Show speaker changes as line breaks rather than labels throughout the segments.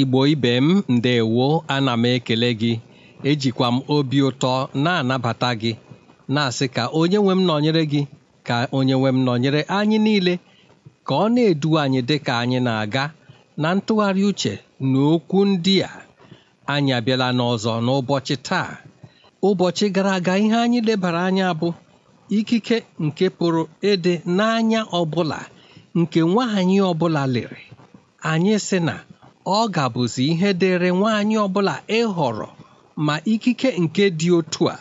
Igbo ibe m ndewo ana m ekele gị ejikwa m obi ụtọ na-anabata gị na-asị ka onye nwe m nọnyere gị ka onye nwe m nọnyere anyị niile ka ọ na-edu anyị dịka anyị na-aga na ntụgharị uche na okwu ndị a anyị abịala n'ọzọ n'ụbọchị taa ụbọchị gara aga ihe anyị lebara anya bụ ikike nke pụrụ ịdị n'anya ọbụla nke nwaanyị ọbụla lere anyị sị na ọ gabụzi ihe dịrị nwaanyị ọbụla ịhọrọ ma ikike nke dị otu a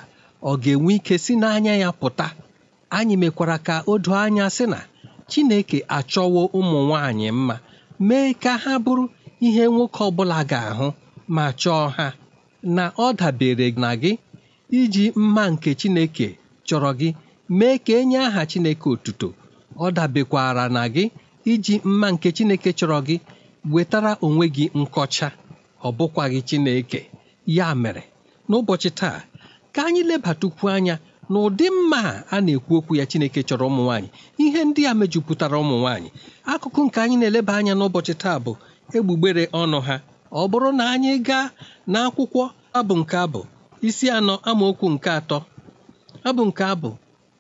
ọ ga-enwe ike si n'anya ya pụta anyị mekwara ka o doo anya sị na Chineke achọwo ụmụ nwaanyị mma mee ka ha bụrụ ihe nwoke ọbụla ga-ahụ ma chọọ ha na ọ dabere na gị iji mma nke Chineke chọrọ gị mee ka enye aha Chineke otuto ọ dabekwara na gị iji mma nke Chineke chọrọ gị wetara onwe gị nkọcha ọ bụkwaghị Chineke ya mere n'ụbọchị taa ka anyị lebatukwu anya na ụdị mma a na-ekwu okwu ya Chineke chọrọ ụmụ nwaanyị ihe ndị a mejupụtara ụmụ nwaanyị akụkụ nke anyị na-eleba anya n'ụbọchị taa bụ egbugbere ọnụ ha ọ bụrụ na anyị gaa n'akwụkwọ abụ nke abụ isi anọ amaokwu nke atọ abụ nke abụ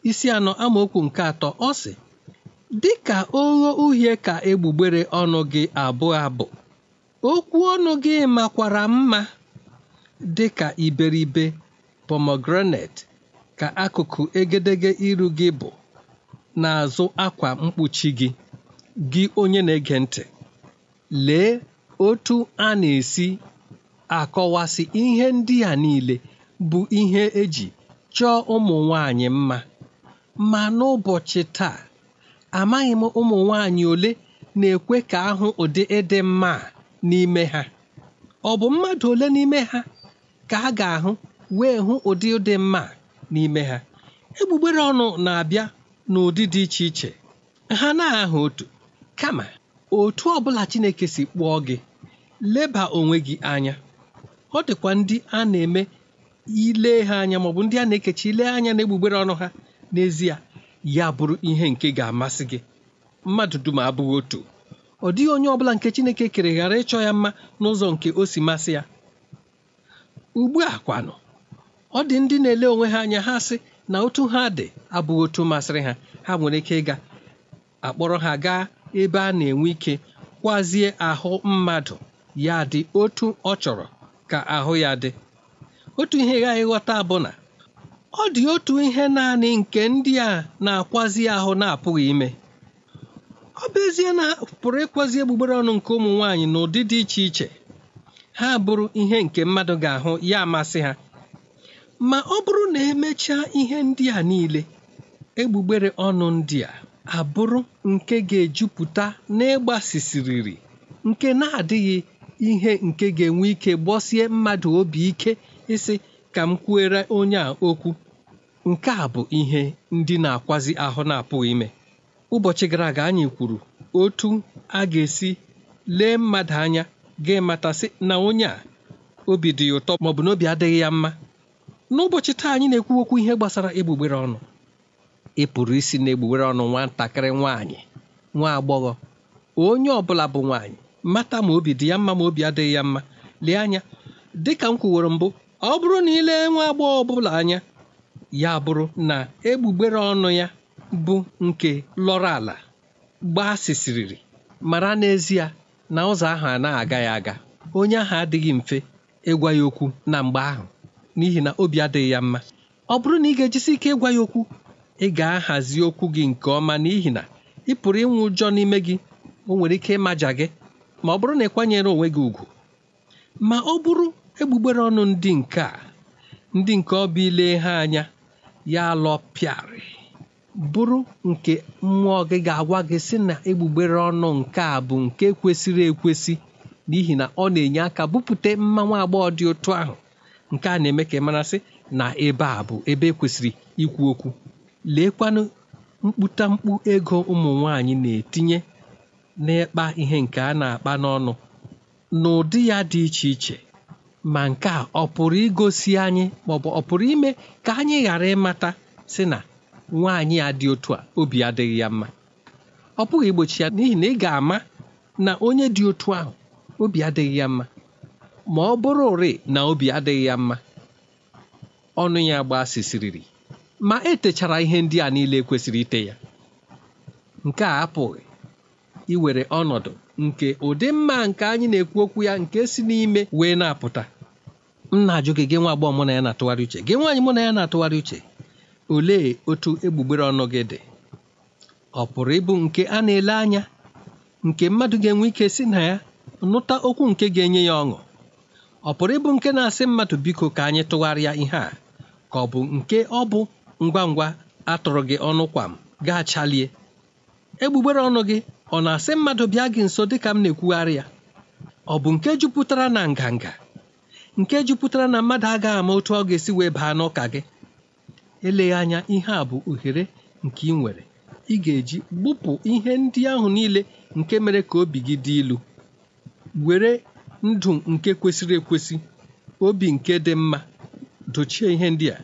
isi anọ amaokwu nke atọ ọ sị dịka ogho uhie ka egbugbere ọnụ gị abụọ abụ okwu ọnụ gị makwara mma dịka iberibe pomegranate ka akụkụ egedege iru gị bụ n'azụ akwa mkpuchi gị gị onye na-ege ntị lee otu a na-esi akọwasị ihe ndị a niile bụ ihe eji chọọ ụmụ nwanyị mma ma n'ụbọchị taa amaghị m ụmụ nwaanyị ole na-ekwe ka ahụ ụdị ịdị mma n'ime ha ọ bụ mmadụ ole n'ime ha ka a ga-ahụ wee hụ ụdị ụdị mma n'ime ha egbugbere ọnụ na-abịa n'ụdị dị iche iche ha na-ahụ otu kama otu bụla Chineke si kpụọ gị leba onwe gị anya ọ dịkwa ndị a na-eme ile ha anya maọbụ ndị a na-ekechi ile anya na egbugbere ọnụ ha n'ezie ya bụrụ ihe nke ga-amasị gị mmadụ dum abụghị otu ọ dịghị onye ọbụla nke Chineke kere ghara ịchọ ya mma n'ụzọ nke o si masị ya ugbu a kwanụ ọ dị ndị na-ele onwe ha anya ha sị na otu ha dị abụghị otu masịrị ha ha nwere ike ịga akpọrọ ha gaa ebe a na-enwe ike kwazie ahụ mmadụ ya dị otu ọ chọrọ ka ahụ ya dị otu ihe ghaghị ghọta bụ na ọ dị otu ihe naanị nke ndị a na-akwazi ahụ na-apụghị ime ọ bụ ezie na pụrụ ịkwazi egbugbere ọnụ nke ụmụ nwaanyị n'ụdị dị iche iche ha bụrụ ihe nke mmadụ ga-ahụ ya amasị ha ma ọ bụrụ na emechaa ihe ndị a niile egbugbere ọnụ ndị a abụrụ nke ga-ejupụta n'ịgbasisiriri nke na-adịghị ihe nke ga-enwe ike gbọsie mmadụ obi ike ịsị ka m kwuere onye a okwu nke a bụ ihe ndị na-akwazi ahụ na-apụghị ime ụbọchị gara aga anyị kwuru otu a ga-esi lee mmadụ anya ga-amatasị na onye a obi dị ya ụtọ maọbụ na obi adịghị ya mma n'ụbọchị taa anyị na-ekwu okwu ihe gbasara egbugbere ọnụ ị pụrụ isi na egbugbere ọnụ nwatakịrị nwaanyị nwa agbọghọ onye ọ bụla bụ nwaanyị mata ma obi dị ya mma ma obi adịghị ya mma lee anya dịka m kwuworo mbụ ọ bụrụ na ịlee nwa agbọghọ ọbụla anya ya bụrụ na egbugbere ọnụ ya bụ nke lọrọ ala gbasisiriri mara n'ezie na ụzọ ahụ anaghị aga ya aga onye ahụ adịghị mfe ịgwa ya okwu na mgbe ahụ n'ihi na obi adịghị ya mma ọ bụrụ na ị ga-ejisi ike ịgwa ya okwu ị ga-ahazi okwu gị nke ọma n'ihi na ị pụrụ ịnwụ ụjọ n'ime gị o nwere ike ịmaja gị ma ọ bụrụ na ị kwanyere onwe gị ùgwù ma ọ bụrụ egbugbere ọnụ ndị nke a ndị nke ọbịa ile ha anya ya alọpịarị bụrụ nke mmụọ gị ga-agwa gị sị na egbugbere ọnụ nke a bụ nke kwesịrị ekwesị n'ihi na ọ na-enye aka bupute mmanwu agbọghọ dị otu ahụ nke a na-eme ka ị marasị na ebe a bụ ebe ekwesịrị ikwu okwu leekwanụ mkputamkpu ego ụmụ nwanyị na-etinye n'ịkpa ihe nke a na-akpa n'ọnụ n'ụdị ya dị iche iche ma nke a ọ pụrụ igosi anyị maọbụ ọ pụrụ ime ka anyị ghara ịmata si na nwaanyị a dị otu a obi adịghị ya mma ọ pụghị igbochi ya n'ihi na ị ga-ama na onye dị otu ahụ obi adịghị ya mma ma ọ bụrụ ụrị na obi adịghị ya mma ọnụ ya sisiriri ma etechara ihe ndị a niile e kwesịrị ite ya nke a apụghị iwere ọnọdụ nke ụdị mma nke anyị na-ekwu okwu ya nke si n'ime wee na-apụta m na-ajụ gị gị nwa agbọghọ mụ na ya na-atụgharị uche gị nwaanyị mụ na ya na-atụgharị uche olee otu egbugbere ọnụ gị dị ọ pụrụ ịbụ nke a na-ele anya nke mmadụ ga-enwe ike si na ya nụta okwu nke ga-enye ya ọṅụ ọ pụrụ ịbụ nke na-asị mmadụ biko ka anyị tụgharịa ihe a ka ọ bụ nke ọ bụ ngwa ngwa atụrụ gị ọnụ kwam m gaa chalie egbugbere ọnụ gị ọ na-asị mmadụ bịa gị nso dịka m na-ekwugharị ya ọ bụ nke jupụtara na nganga nke jupụtara na mmadụ agaghị ama otu ọ ga-esi wee baa n'ụka gị eleghị anya ihe a bụ ohere nke ị nwere ị ga-eji gbupụ ihe ndị ahụ niile nke mere ka obi gị dị ilu were ndụ nke kwesịrị ekwesị obi nke dị mma dochie ihe ndị a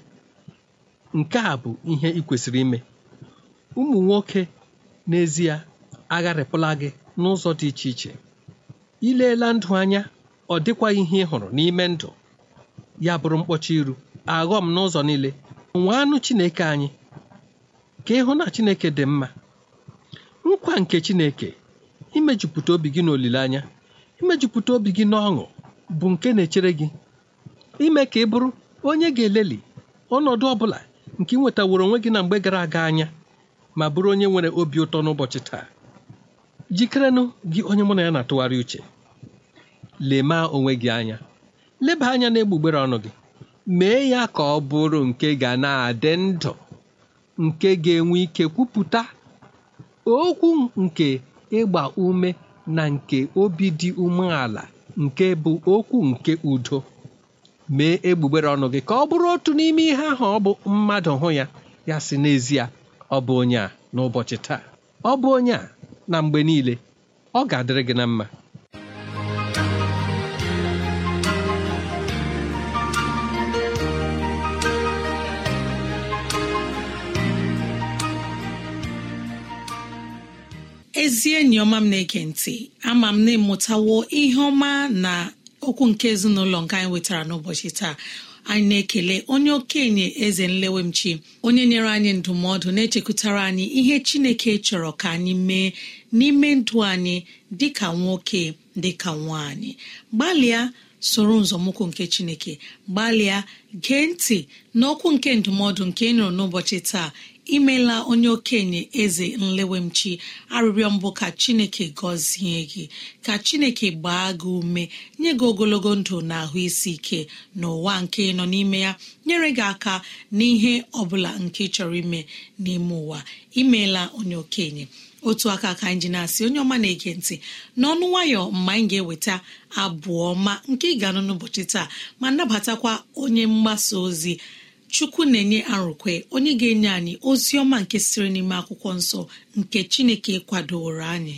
nke a bụ ihe ị kwesịrị ime ụmụ nwoke n'ezie agharịpụla gị n'ụzọ dị iche iche ileela ndụ anya ọ dịkwaghị ihe ị hụrụ n'ime ndụ ya bụrụ mkpọchi iru aghọm n'ụzọ niile nwee anụ Chineke anyị ka ịhụ na Chineke dị mma nkwa nke Chineke imejupụta obi gị n'olileanya imejupụta obi gị n'ọṅụ bụ nke na-echere gị ime ka ị bụrụ onye ga-eleli ọnọdụ ọ bụla nke ị nwetaworo onwe gị na mgbe gara aga anya ma bụrụ onye nwere obi ụtọ n'ụbọchị taa jikerenụ gị onye mụ na ya na-atụgharị uche lemaa onwe gị anya leba anya na-egbugbere ọnụ gị mee ya ka ọ bụrụ nke ga na-adị ndụ nke ga-enwe ike kwupụta okwu nke ịgba ume na nke obi dị umeala nke bụ okwu nke udo mee egbugbere ọnụ gị ka ọ bụrụ otu n'ime ihe ahụ ọ bụ mmadụ hụ ya ya si n'ezie ọ bụ onye a n'ụbọchị taa ọ bụ onye a na mgbe niile ọ ga-adịrị gị na mma
ezi enyi ọma m na-ege ntị ama m na ịmụtawo ihe ọma na okwu nke ezinụlọ nke anyị nwetara n'ụbọchị taa anyị na-ekele onye okenye eze nlewemchi onye nyere anyị ndụmọdụ na-echekwutara anyị ihe chineke chọrọ ka anyị mee n'ime ndụ anyị ka nwoke dị ka nwaanyị gbalịa soro nzọmụkwụ nke chineke gbalịa gee ntị n'okwu nke ndụmọdụ nke ị nụrụ n'ụbọchị taa imela onye okenye eze nlewemchi arịrịọ mbụ ka chineke gọzie gị ka chineke gbaa gị ume nye gị ogologo ndụ na ahụ isi ike n'ụwa nke nọ n'ime ya nyere gị aka n'ihe ọbụla nke chọrọ ime n'ime ụwa imeela onye okenye otu aka ka anyị ji na-asị onye ọma na-ege ntị n'ọnụ nwayọ mgbe anyị ga-eweta abụ ọma nke ị ga-anụ n'ụbọchị taa ma nabatakwa onye mgbasa ozi chukwu na-enye arụkwe onye ga-enye anyị ozi ọma nke siri n'ime akwụkwọ nsọ nke chineke kwadoro anyị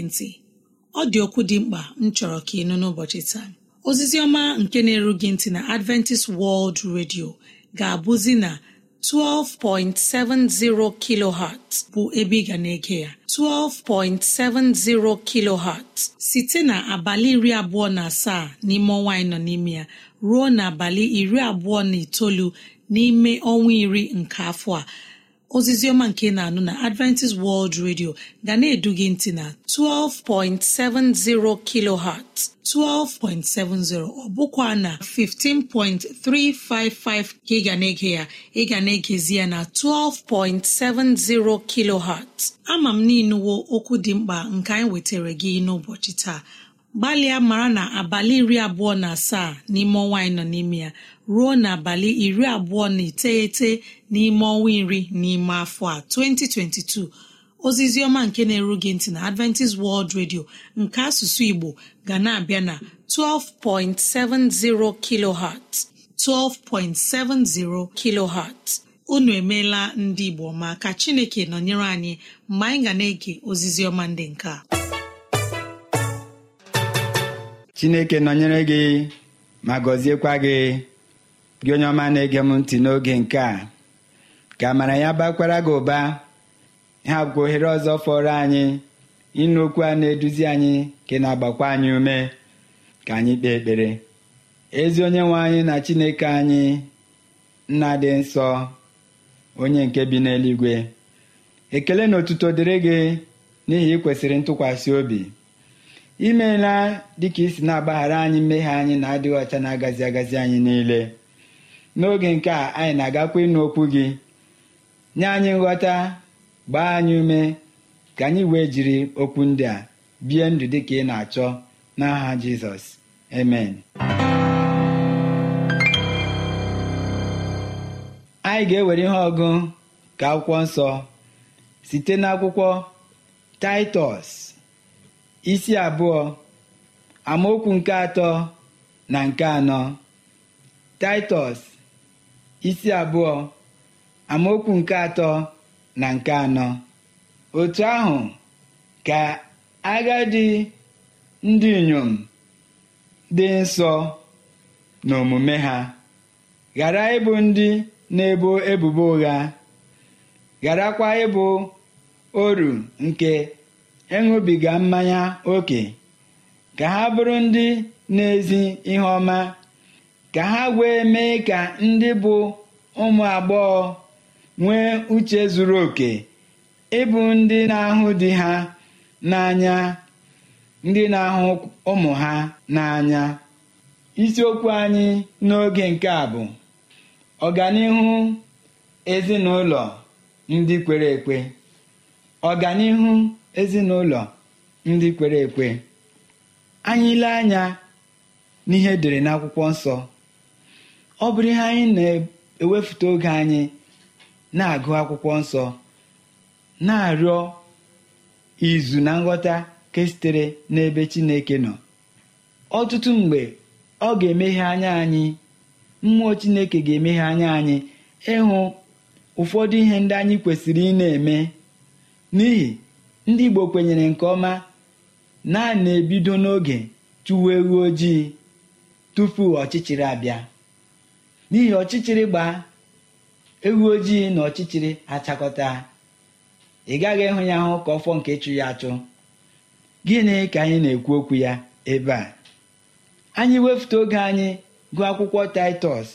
na ọ dị okwu dị mkpa m chọrọ ka ị nụ n'ụbọchị taa ozizi ọma nke na-eru ntị na adventist world radio ga-abụzi na 12.70 kilohertz bụ ebe ị ga na-ege ya 12.70 kilohertz site na abalị iri abụọ na asaa n'ime ọnwa anyị nọ n'ime ya ruo na abalị iri abụọ na itoolu n'ime ọnwa iri nke afọ a ozizi ọma nke na-anụ na adventist world radio ga na-edu gị ntị na 12.70 kilohertz 12.70 ọ bụkwa na 15.355 ka ị ga na-ege ya ị ga na-egezi ya na 12.70 kilohertz ama m n'inuwo okwu dị mkpa nke anyị wetara gị n'ụbọchị taa gbalịa mara na abalị iri abụọ na asaa n'ime ọnwa anyị nọ n'ime ya ruo n'abalị iri abụọ na iteghete n'ime ọnwa iri n'ime afọ a 2022 ozizi ọma nke na-eru gị ntị na Adventist World Radio nke asụsụ Igbo ga na-abịa na 12.70 kilohertz 12.70 kilohertz unu emeela ndị Igbo ma ka Chineke nọnyere anyị mgbe anyị ga na-ege ozizi ndị nke a
chineke nọnyere gị ma gọziekwa gị gị onye ọma na-ege m ntị n'oge nke a ka amara ya bakwara gị ụba ha bụkwa ohere ọzọ fọrọ anyị ịnụ okwu a na-eduzi anyị ka na-agbakwa anyị ume ka anyị kpee ekpere ezi onye nwe anyị na chineke anyị nna dị nsọ onye nke bi n'eluigwe ekele na otuto dịrị gị n'ihi ị kwesịrị ntụkwasị obi imeela dịka isi na-agbaghara anyị mmehie anyị na-adịghị ọcha na-agazi agazi anyị niile n'oge nke a anyị na-agakwa ịnụ okwu gị nye anyị nghọta gbaa anyị ume ka anyị wee jiri okwu ndị a bie ndụ dị ka ị na-achọ n'aha jizọs amen anyị ga-ewere ihe ọgụ ka akwụkwọ nsọ site n'akwụkwọ taịtọs isi abụọ amaokwu nke atọ na nke anọ Taịtọs isi abụọ amaokwu nke atọ na nke anọ otu ahụ ka agadi ndị inyom dị nsọ na omume ha ghara ịbụ ndị na-ebo ebubo ụgha gharakwa ịbụ oru nke ịṅụbiga mmanya ókè ka ha bụrụ ndị na-ezi ihe ọma ka ha wee mee ka ndị bụ ụmụ agbọghọ nwee uche zuru oke ịbụ ndị na-ahụ di ha n'anya ndị na-ahụ ụmụ ha n'anya isiokwu anyị n'oge nke a bụ ọganihu ezinụlọ ndị kwere ekwe ọganihu ezinụlọ ndị kwere ekwe anyị ile anya n'ihe edere n'akwụkwọ nsọ ọ bụrụ ihe anyị na-ewefute oge anyị na-agụ akwụkwọ nsọ na-arịọ izu na nghọta ke sitere n'ebe Chineke nọ ọtụtụ mgbe ọ ga-emeghe anya anyị mmụọ Chineke ga-emeghe anya anyị ịhụ ụfọdụ ihe ndị anyị kwesịrị ị na-eme n'ihi ndị Igbo kwenyere nke ọma na a na-ebido n'oge chụwa ewu ojii tupu ọchịchịrị abịa n'ihi ọchịchịrị gbaa ewu ojii na ọchịchịrị achakọta ị gaghị ịhụ ya ahụ ka ọfọ nke ịchụ ya achụ gịnị ka anyị na-ekwu okwu ya ebe a anyị wefute oge anyị gụọ akwụkwọ taịtọs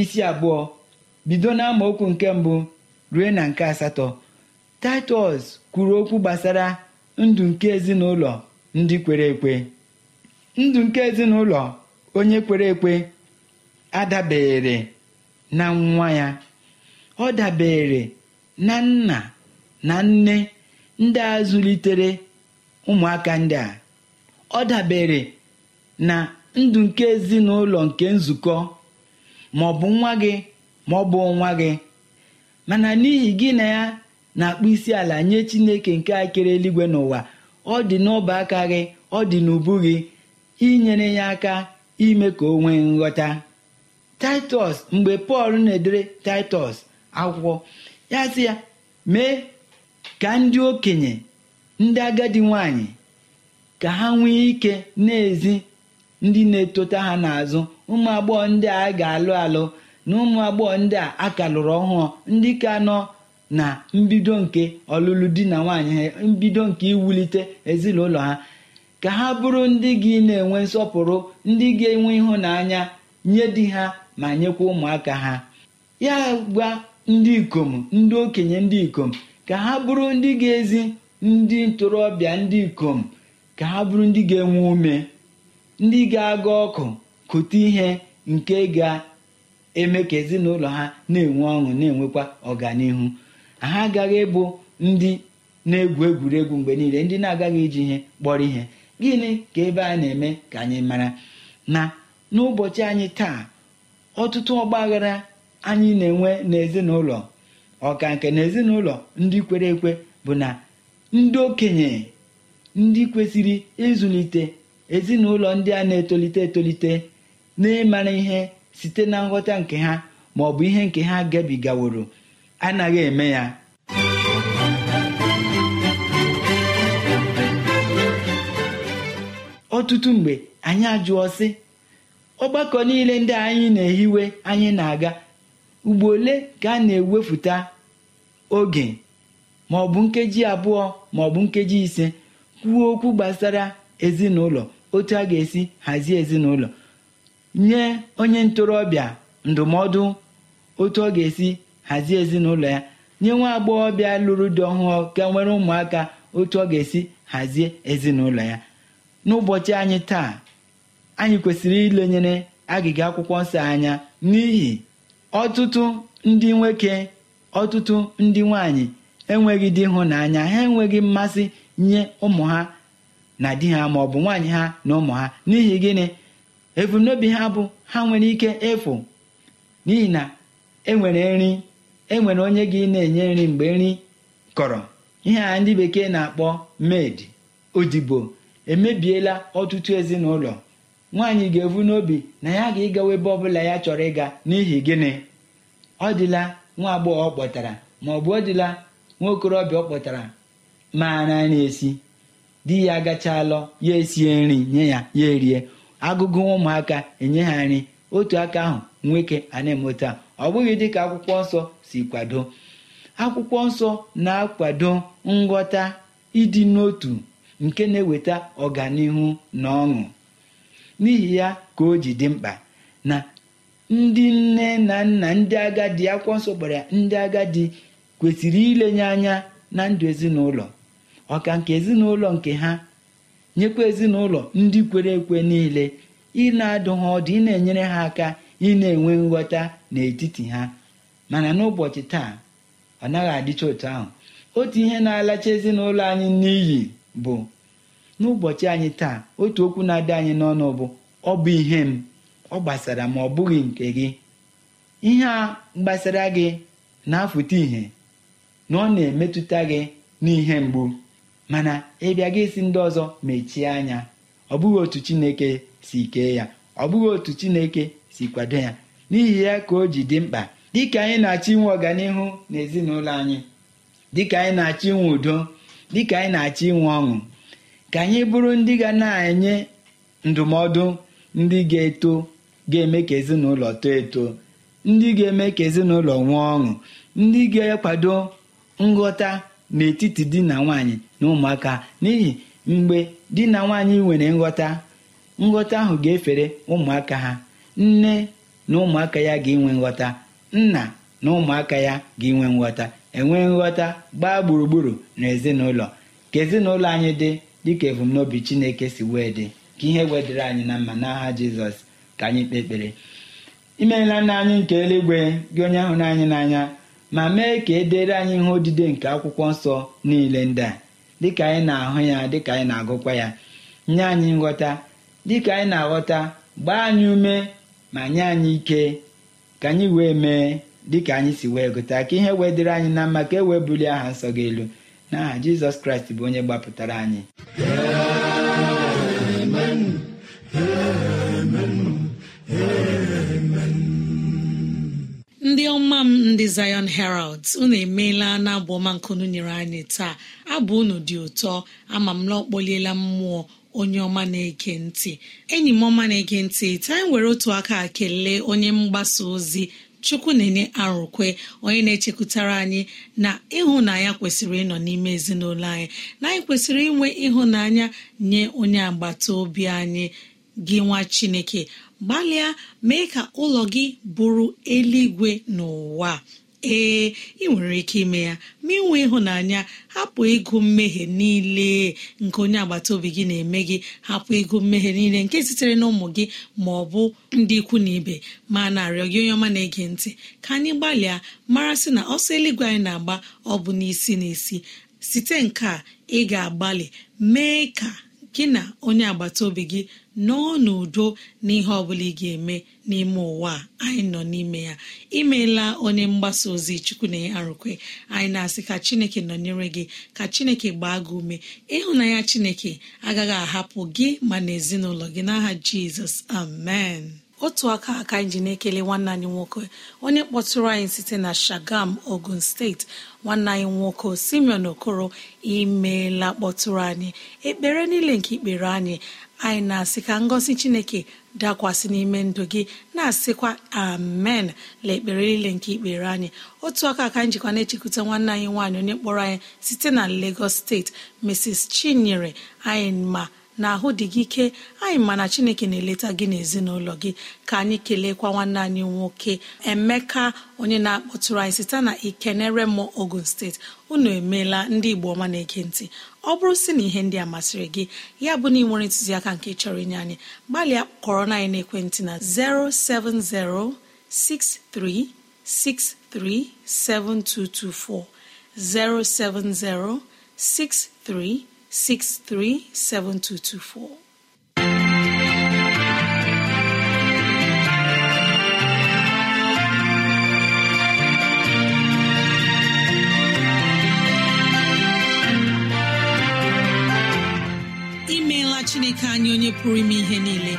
isi abụọ bido na okwu nke mbụ ruo na nke asatọ taịtọs kwuru okwu gbasara ndụ nke ezinụlọ ndị kwere ekwe ndụ nke ezinụlọ onye kwere ekwe adabere na nwa ya ọ dabere na nna na nne ndị a zụlitere ụmụaka ndị a ọ dabere na ndụ nke ezinụlọ nke nzukọ ma ọ bụ nwa gị ma ọ bụ nwa gị mana n'ihi gị na ya na akpụ isi ala nye chineke nke akere eluigwe n'ụwa ọ dị n'ọba aka ọ dị n'ubu gị inyere ya aka ime ka o nwee nghọta taịtọs mgbe pọl na-edere taịtọs akwụkwọ ya sị ya mee ka ndị okenye ndị agadi nwanyị ka ha nwee ike n'ezi ndị na-etota ha n'azụ ụmụ agbọghọ ndị a ga-alụ alụ na ụmụ agbọghọ ndị a akalụrụ lụrụ ọhụụ ndị ka nọ na mbido nke ọlụlụ di na nwaanyị ha mbido nke iwulite ezinụlọ ha ka ha bụrụ ndị gị na-enwe nsọpụrụ ndị ga-enwe ịhụnanya nye di ha ma nyekwa ụmụaka ha ya gwa ndị ikom ndị okenye ndị ikom ka ha bụrụ ndị ga-ezi ndị ntorobịa ndị ikom ka ha bụrụ ndị ga-enwe ume ndị ga-aga ọkụ kụta ihe nke ga-eme ka ezinụlọ ha na-enwe ọṅụ na-enwekwa ọganihu ha agaghị ịbụ ndị na-egwu egwuregwu mgbe niile ndị na-agaghị iji ihe kpọrọ ihe gịnị ka ebe a na-eme ka anyị mara na n'ụbọchị anyị taa ọtụtụ ọgbaghara anyị na-enwe n'ezinụlọ ọka nke na ezinụlọ ndị kwere ekwe bụ na ndị okenye ndị kwesịrị ịzụlite ezinụlọ ndị a na-etolite etolite na ịmara ihe site na nghọta nke ha ma ọ bụ ihe nke ha gabigaworo anaghị eme ya ọtụtụ mgbe anyị ajụọ sị ọgbakọ niile ndị anyị na-ehiwe anyị na-aga ugbo ole ka a na-ewefụta oge ma ọ bụ nkeji abụọ ma ọ bụ nkeji ise kwuo okwu gbasara ezinụlọ otu a ga-esi hazie ezinụlọ nye onye ntorobịa ndụmọdụ otu ọ ga-esi hazie ezinụlọ ya nye nwa agbọghọbịa lụrụ di ọhụụ ka nwere ụmụaka otu ọ ga-esi hazie ezinụlọ ya n'ụbọchị anyị taa anyị kwesịrị ilenyere agịga akwụkwọ nsọ anya n'ihi ọtụtụ ndị nwoke ọtụtụ ndị nwanyị enweghị hụ n'anya ha enweghị mmasị nye ụmụ ha na di ha ma ọ bụ nwaanyị ha na ụmụ ha n'ihi gịnị ebumnobi ha bụ ha nwere ike ịfụ n'ihi na enwere nri enwere onye gị na-enye nri mgbe nri kọrọ ihe a ndị bekee na-akpọ med odibo emebiela ọtụtụ ezinụlọ nwaanyị ga-evu n'obi na ya ga-ịgawa ebe ọbụla ya chọrọ ịga n'ihi gịnị ọ dịla nwa agbọghọ kpọtara ma ọ bụ ọ dịla nwa okorobịa ọ kpọtara maara na-esi di ya agachalọ ya esie nri nye ya ya erie agụgụ ụmụaka enye ha nri otu aka ahụ nwoke ana na-emota ọ bụghị dịka akwụkwọ nsọ si kwado akwụkwọ nsọ na-akwado nghọta ịdị n'otu nke na-eweta ọganihu na ọṅụ n'ihi ya ka o ji dị mkpa na ndị nne na nna ndị agadi akwụkwọ nsọ gbara ndị agadi kwesịrị ilenye anya na ndụ ezinụlọ ọka nke ezinụlọ nke ha nyekwa ezinụlọ ndị kwere ekwe niile ị na-adụ ha ọdụ ị na-enyere ha aka ị na-enwe nghọta n'etiti ha mana n'ụbọchị taa ọ naghị adịcha otu ahụ otu ihe na-alacha ezinụlọ anyị n'iyi bụ n'ụbọchị anyị taa otu okwu na-adị anyị n'ọnụ bụ ọ bụ ihe m ọ gbasara ma ọ bụghị nke gị ihe a gbasara gị na-afụta ihe na ọ na-emetụta gị n'ihe mgbu mana ịbịa gị si ndị ọzọ mechie anya ọ bụghị otu Chineke si kee ya ọ bụghị otu Chineke si kwado ya n'ihi ya ka o ji dị mkpa dịka anyị na-achọ inwe ọganihu n'ezinụlọ anyị dịka anyị na-achọ inwe udo dịka anyị na-achọ inwe ọṅụ ka anyị bụrụ ndị ga na-enye ndụmọdụ ndị ga-eto ga-eme ka ezinụlọ too eto ndị ga-eme ka ezinụlọ nwee ọṅụ ndị ga-akwado nghọta n'etiti di na nwanyị na ụmụaka n'ihi mgbe di na nwanyị nwere nghọta nghọta ahụ ga-efere ụmụaka ha nne na ụmụaka ya ga-enwe nghọta nna na ụmụaka ya ga-enwe nghọta enwe nghọta gbaa gburugburu na ezinụlọ ka ezinụlọ anyị dị dịka ebumnobi chineke si wee dị ka ihe wedịre anyị na mma n'agha jizọs ka anyị kpee ekpere imeela nna anyị nke eluigwe gị onye ahụ anyị n'anya ma mee ka e dere anyị ihe odide nke akwụkwọ nsọ niile ndị a dịka anyị na-ahụ ya dịka anyị na-agụkwa ya nye anyị nghọta dịka anyị na-aghọta gbaa anyị ume ma nye anyị ike ka anyị wee mee dịka anyị si wee gụta ka ihe wee dịrị anyị na mma ka e wee bulie aha nsọ gị elu n'aha Jizọs Kraịst bụ onye gbapụtara anyị
ndị ọma m ndị Zion Herald unu emeela na abụ ọma nkunu nyere anyị taa abụ unu dị ụtọ ama m na mmụọ onye ọma na-ege ntị enyi m ọma na-ege ntị taa anyị e were otu aka kelee onye mgbasa ozi chukwu na-enye arụkwe onye na-echekwutara anyị na ịhụnanya kwesịrị ịnọ n'ime ezinụlọ anyị na anyị kwesịrị inwe ịhụnanya nye onye agbata obi anyị gị nwa chineke gbalịa mee ka ụlọ gị bụrụ eluigwe n'ụwa ee ị nwere ike ime ya ma inwe ịhụnanya hapụ ịgụ mmehie niile nke onye agbata obi gị na-eme gị hapụ ego mmehie niile nke sitere na ụmụ gị ma ọ bụ ndị ikwu na ibe ma na-arịọ gị onye ọma na-ege ntị ka anyị gbalịa mara sị na ọsọ eluigwe anyị na-agba ọ bụ n'isi n'isi site nke a ị ga-agbalị mee ka gị na onye agbata obi gị nọọ n'udo n'ihe ọ bụla ị ga-eme n'ime ụwa anyị nọ n'ime ya imeela onye mgbasa ozi chukwu na arụkwe anyị na-asị ka chineke nọnyere gị ka chineke gbaa gị ume ịhụnanya chineke agaghị ahapụ gị ma na ezinụlọ gị n'aha jizọs amen otu aka aka anyị ji na-ekele nwanne anyị nwoke onye kpọtụrụ anyị site na shagam ogun steeti nwanne anyị nwoke simeon okoro imeela kpọtụrụ anyị ekpere niile nke ikpere anyị anyị na-asị ka ngọzi chineke dakwasị n'ime ndụ gị na-asịkwa amen la ekpere niile nke ikpere anyị otu aka aka njikwa na-echekwute nwanne anyị nwaanyị onye kpọrọ anyị site na lagos steeti mrs chinyere anyị ma na ahụ dị gị ike anyị mana chineke na-eleta gị n'ezinụlọ gị ka anyị keleekwa nwanne anyị nwoke emeka onye na-akpọtụrụ anyị site na ikenere mọ ogun steeti unu emeela ndị igbo ọma na-ege ntị ọ bụrụ si na ihe ndị a masịrị gị ya bụ na ị nwere ntụziaka nke chọrọ inye anyị gbalịa kọrọ na n'ekwentị na 07063637224 07063 637224. imeela chineke anyị onye pụrụ ime ihe niile